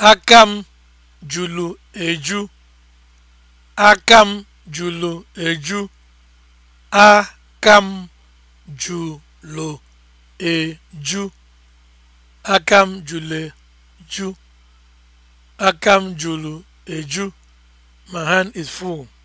aka m jụrụ eju aka m jụrụ eju aka jụrụ eju aka m eju my hand is full